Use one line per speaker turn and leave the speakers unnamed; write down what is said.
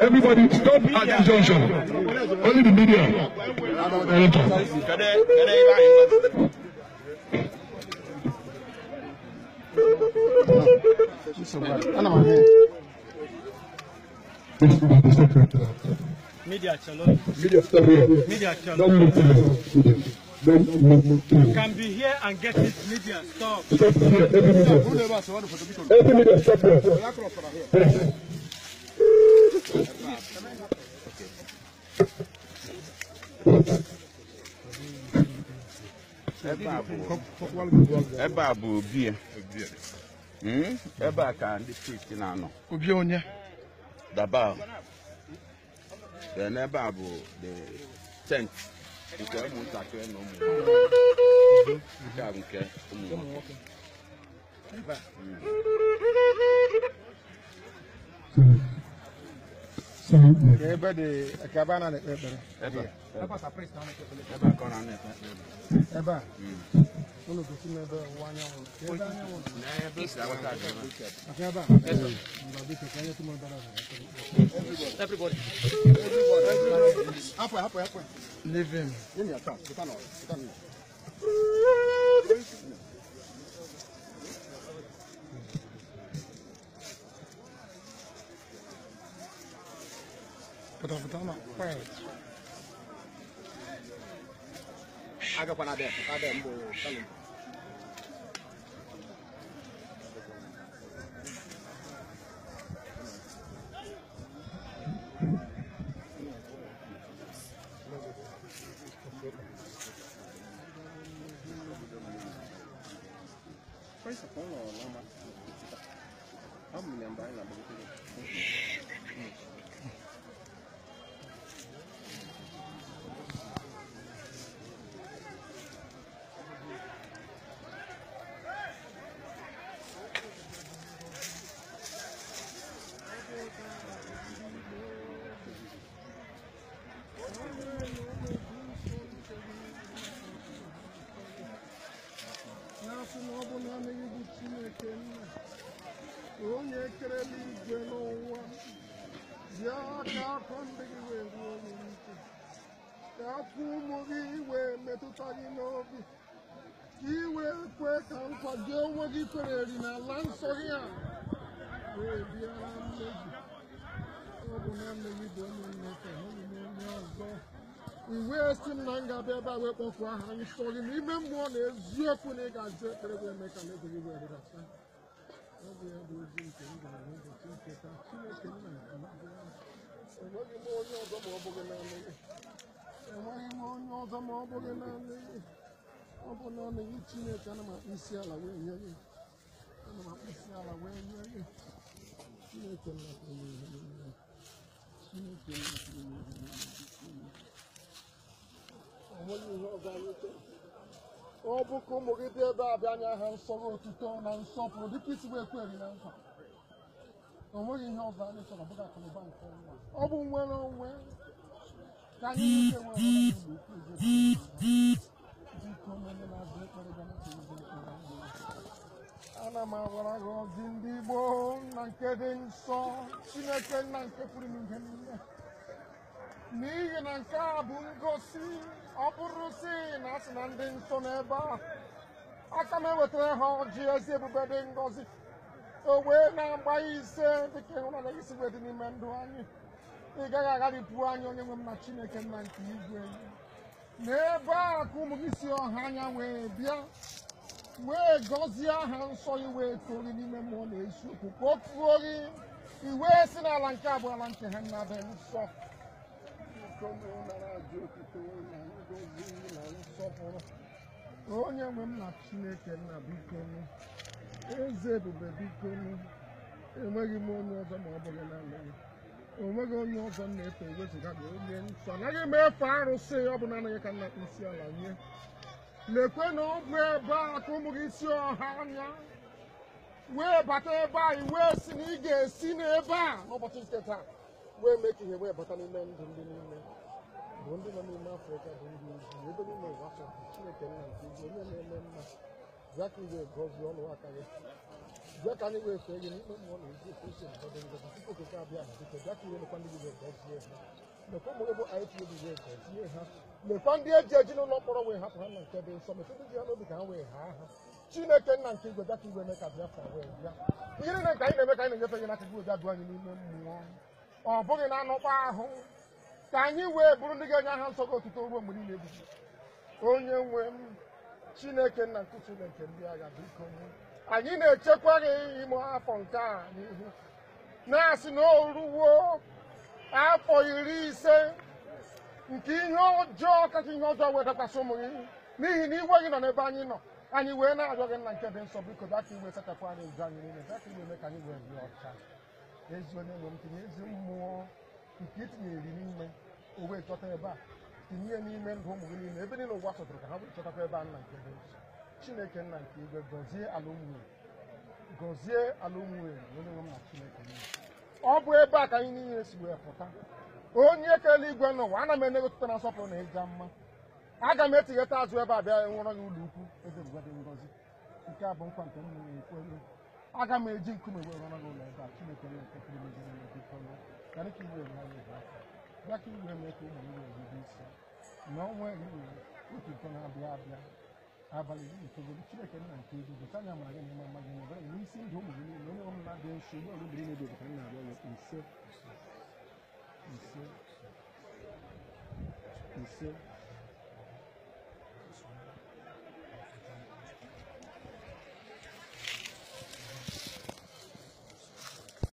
Everybody stop at this junction.
Only the media.
Media channel. Media stop here. Media Don't move to media. Don't move to media. You can be here and get it. Media stop. Stop here. Every media. Every media stop here. ebe a bụ obi ebe a ka ndị kristi na-anọ obi onye daba n'ebe a bụ the tent nke ụmụntakịrị na ụmụ nke a Ebe de kaba na ne pepere. Ebe. Ebe sa priest na ne pepere. Ebe ko na ne pepere. Ebe. Unu ko si mebe wanya wo. Ebe anya wo. Na ebe sa wa ta ga. Akaba. Ebe. Mba bi ka ya tumo dara. Everybody. Everybody. Apo apo apo. Leave him. Yemi ata. Kita no. Kita no. agakwana abịa abịa lá, Vamos me lembrar, Ata akwande kiwe, wè, wè, wè, wè. Ata akwande kiwe, wè, wè, wè, wè. Metu tagi nou, wè. Ki wè, kwe, kan, kwa, gè, wè, gifre, di nan lan so gen. Wè, biyan, meji. Apo nan meji, do mwen, me se, houni, men, mwen, zan. Wè, sin, nan, gabe, ba, wè, kon, kwa, han, nish, to, di, mi, men, mwen, ne, zi, kon, e, ga, zi, pre, wè, me, ka, le, ki, wè, de, la, san. Ape, yon, do, zi, yon, gen, yon, gen, gen, gen, gen enweghị m onye ọzọ ma ọ bụghị naanị gị enweghị onye ọzọ ma ọ bụghị na ọ bụ naanị gị chineke ana m akpụ isi ala wee nye gị ana m akpụ isi chineke chineke enweghị ihe ọzọ ọ bụ ụmụ gị dị ebe a bịa anya ha nsọ otuto na nsọpụrụ dịka isi ekweghị na nkwa o ihe ọ anyị chọrọ bụga akụnụba nke ọnwa ọ bụ nwere onwe ka anyị nwere dịka onye na-azụ ekpere ana m agwara gị ọdị ndị Igbo na nke dị nsọ Chineke nna nke pụrụ ihe n'ihi na nke bụ ngosi ọ na ndị nsọ n'ebe a aka ha ọjị ezi ebube dị ngozi o na-agba ise dịka ịhụna na isi dị n'ime ndụ anyị ị gaghị agharịpụ anyị onye nwe m na chineke nna nke igwe n'ebe a ka ụmụ gị si ọha anya wee bịa wee gọzie aha nsọ gị wee tori n'ime mmụọ na eziokwu ka o fuo gị iwe si n'ala nke abụọ ala nke ha nna be nsọ onye nwe m na chineke nna biko eze ebube biko enweghị m onye ọzọ ma ọ bụghị naanị gị onweghị onye ọzọ m na-efe ewezụga gị onye nsọ anaghị m efe arụsị ọ bụ naanị gị ka nna isi ala nye lekwe na ọ bụ ebe a ka ụmụ gị si ọha anya wee bata ebe a wee si na ị ga-esi n'ebe a n'ụbọchị nke taa wee mee ka ihe wee bata n'ime ndụ ndị n'ime bụ ndị nọ n'ime afrịka bụ ndị ezi ebe niile ụwa afọ chineke nna nke onye na-eme mma bịa ka ị ga gị bịa ka anyị wee fee gị n'ikpe mmụọ ndị gị ga-egozie ha mekwa ụmụ ebo IPOB ga-egozie ha mekwa ndị eji eji n'ụlọ mkpọrọ wee hapụ ha na nke dị nsọ mekwa ndị ha n'obi ka nke igwe bịa ka ka ka mmụọ ọ bụghị na anọkpa ahụ ka anyị wee bụrụ ndị ga-enye aha gị onye chineke nna nkụtule nke ndị agha biko anyị na-echekwa gị ime afọ nke a n'ihu na-asị na o afọ iri ise nke ihe ọjọọ kacha ihe ọjọọ wee wetakwasị ụmụ gị n'ihi na iwe gị nọ n'ebe anyị nọ anyị wee na-arịọ gị nna nke dị nsọ biko bịa ka iwe sachapụ anyị ụzọ anyị niile bịa ka iwe ka anyị wee dị ọcha ezi onye nwe m tinye ezi mmụọ nke itinyere n'ime o wee chọta ebe a tinye n'ime ndụ ụmụ gị niile ebe niile ụwa chọtara ka ha bụrụ chọtakwa ebe a nna nke ebe chineke nna nke igwe gọzie ala gọzie ala onye nwe m na chineke ọ bụ ebe a ka anyị niile si wee pụta onye kere igwe n'ụwa ana m enegotuta na nsọpụrụ na ịja mma aga m etigheta azụ ebe a bịa nwụrọ gị ụlọ ukwu ebe mgbe dị ngọzi nke a bụ nkwa nke m m eji nkume wee gị ụlọ ebe a chineke ka iwe bịa ka iwe mee ka ụmụ nwere isi na ọnwa eri were otu ụtọ na-abịa abịa abalị iri itoolu chineke nna nke ezigbo ka anya mara gị n'ime ama gị ebere n'isi ndụ ụmụ gị niile onye ọbụla dị nso ụgbọ ọrụ mmiri na-ebi ka